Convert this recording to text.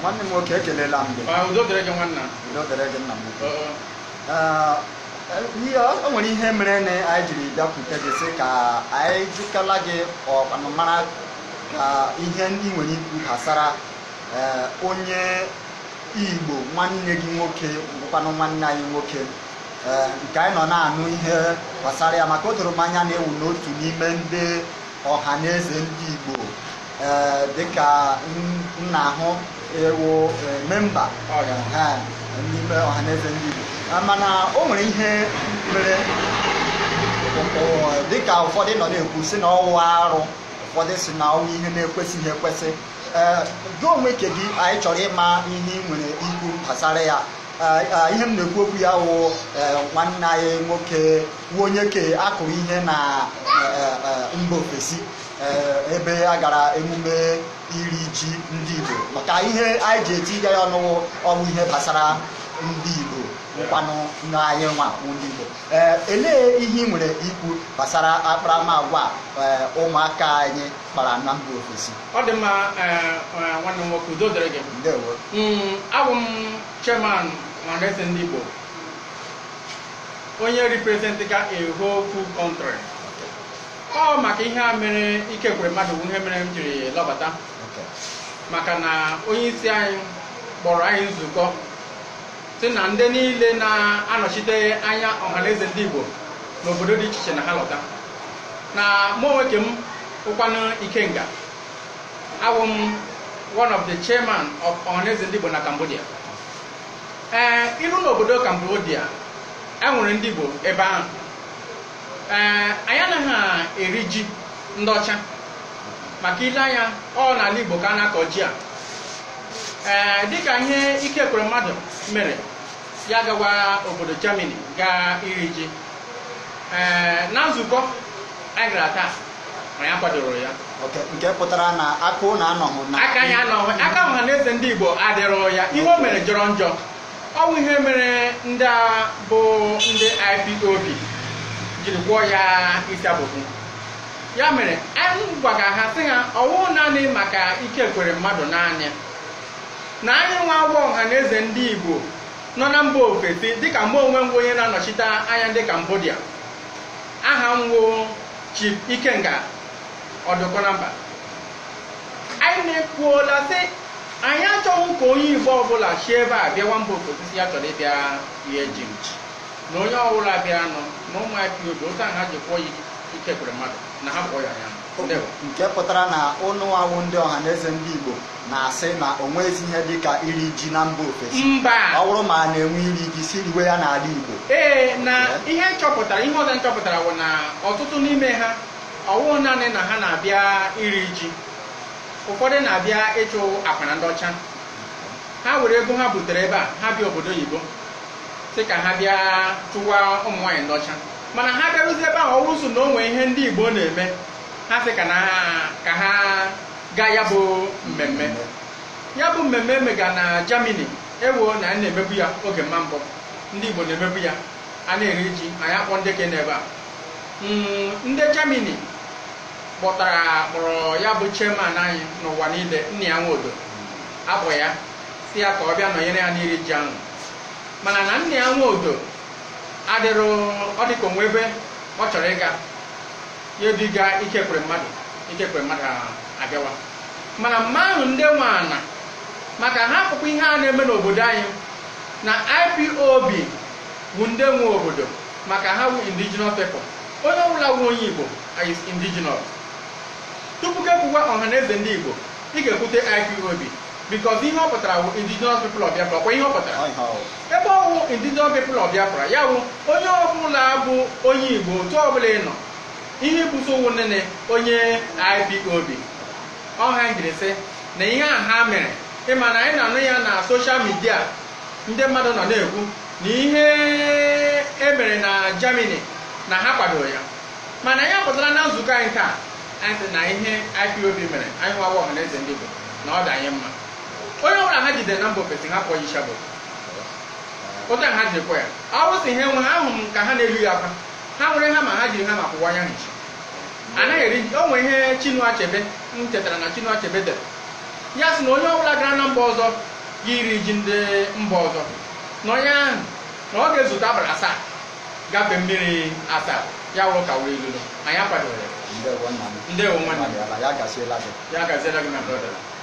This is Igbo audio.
nwanne m nwoke ekelela m o nwere ihe mere na anyị jiri bịakwute gị sị ka anyị jụkala gị ọkpanụmara ka ihe ndị nwere ikwu gbasara eh, onye igbo nwanne gị nwoke bụkwanụ nwanne anyị nwoke eh, nke anyị nọ na-anụ ihe gbasara ya maka o doro m anya na-ewu n'otu n'ime ndị ọha na eze ndị igbo Eh, dịka m ahụ ewu eh, memba n'ime ọhaneze ndị Igbo ah, mana o nwere ihe mere eh, dịka ụfọdụ nọ na-ekwu si na ọwụ arụ ụfọdụ si na ọwụ ihe na-ekwesịghị ekwesị gị onwe nke gị anyị chọrọ ịma ihe ị nwere ikwu gbasara ya ah, ihe m na-ekwu okwu ya wụ nwanne anyị nwoke nwa onye ke akụrụ ihe na mba ofesi Eh, ebe a gara emume iri ji ndị Igbo maka ihe anyị ji etinye ya ọnụ ọnwụ ihe gbasara ndị Igbo nkwanụ n'anyị nwa ndị Igbo eh, elee ihe ị nwere ikwu gbasara akparamagwa eh, ụmụaka anyị kpara na mba ofesi ọ dị ma, nwanne m nwoke udo gị mm, m chairman ndị Igbo onye representị ka whole full ọ maka ihe a mere ike kwere mmadụ ihe mere m jiri lọbata maka na onye isi anyị kpọrọ anyị nzukọ si na ndị niile na-anọchite anya ọhaneze ndị Igbo n'obodo dị iche iche na ha lọta na mụ onwe ke m ụkwanụ Ikenga abụ m one of the chairman of ọhaneze ndị Igbo na Cambodia ee iru n'obodo Cambodia enwere ndị Igbo ebe ahụ Eh, anyị anaghị eri ji ndị ọcha maka ile anya ọ n'ala Igbo ka a na-akọ ji a eh, dịka ihe ike kwere mmadụ mere ya gawa obodo Germany gaa iri ji eh, na nzukọ anyị taa ma ya kwadoro ya nke pụtara na aka na anọghị na aka anọghị aka ọha eze ndị Igbo adịrọ ya ihe o mere jọrọ njọ bụ ihe mere ndị a bụ ndị IPOB jiri gwọọ ya isi abụbụ ya mere anyị gwaga ha sị ha ọwụ naanị maka ike kwere mmadụ naanị na anyị nwa agwọ ọha na eze ndị igbo nọ na mba ofesi dịka mba onwe m onye na-anọchite anya ndị kambodia aha nwo Chief Ikenga Odukonamba anyị na-ekwuola sị anyị achọghị ka onye igbo ọbụla chi ebe a bịa nwa mba ofesi ya chọrọ ịbịa ihe ji nchi na onye ọbụla bịa nọ na ụmụ ya otu ha ji kwụọ ya ikekwere mmadụ na ha kpọọ ya ya nke pụtara na ụnụ ndị ọha na eze ndị igbo na-asị na o nweghịzi ihe dị ka iri ji na mba ofesi mba ọ bụrụ ma a na-enwe iri ji si riwe ya n'ala igbo ee na ihe nchọpụtara ihe ọzọ nchọpụtara bụ na ọtụtụ n'ime ha ọwụ naanị na ha na-abịa iri ji ụfọdụ na-abịa ịchụ akpa ndị ọcha ha were ego ha butere ebe a ha bịa obodo oyibo sị ka ha bịa chụwa ụmụ nwaanyị ndọcha mana ha bịarụzie ebe ahụ ọ so na o nwee ihe ndị igbo na-eme ha sị ka ha gaa ya bụ mmemme ya bụ mmemme e mega na Germany ewo na a na-emebu ya oge mma mbụ ndị igbo na-emebu ya a na-eri ji ya akpọ ndị ke n'ebe a hmm, ndị jamini kpọtara kpọrọ ya bụ chairman anyị n'ụwa niile nna ya nwodo akpọ ya si ya ka ọ bịa nọnyere ya n'iri ji ahụ mana na nna ya nwa odo ọ ọdịka onwe ebe ọ chọrọ ịga ya ike kwe mmadụ ikekwe mmadụ abịawa mana mma ahụ ndị nwana maka ha akpụkpọ ihe a na-eme n'obodo anyị na IPOB bụ ndị nwe obodo maka ha wu indigenous people onye ọbụla wu onye Igbo is indigenous tupu ka ekwuwa ọha eze ndị Igbo ị ga-ekwute IPOB because ihe ọ pụtara bụ indigenous people of Biafra kwa ihe ọ ebe ọ bụ indigenous people of Biafra ya bụ onye ọbụla bụ onye Igbo otu ọbụla ị nọ ihe busowu nene onye IPOB ọha jiri sị na ihe a ha mere ịma anyị na-anụ ya na soshal midia ndị mmadụ nọ na-ekwu na ihe e mere na Germany na ha kwadoro ya mana ya pụtara na nzukọ anyị taa anyị sị na ihe IPOB mere anyị hụwa eze ndị Igbo na ọ dị anyị mma change the number ha person ha kpọọ Yishabod ụta ha ji kpọ ya si ha nwe ahụ m ka ha na-elu ya akwa ha nwere hama ha jiri hama kwụwa anya nchi anaghị eri o nwere ihe Chinua Achebe m chetara na Chinua Achebe dere ya sị na onye ọbụla gara na mba ọzọ ga iri ji ndị mba ọzọ na onye ahụ na ọ ga-ezute abalị asaa gafe mmiri asaa ya wụrụ ka wee lulu anyị akwadoghị ya ndewo nwanne ya gaziela gị na brọda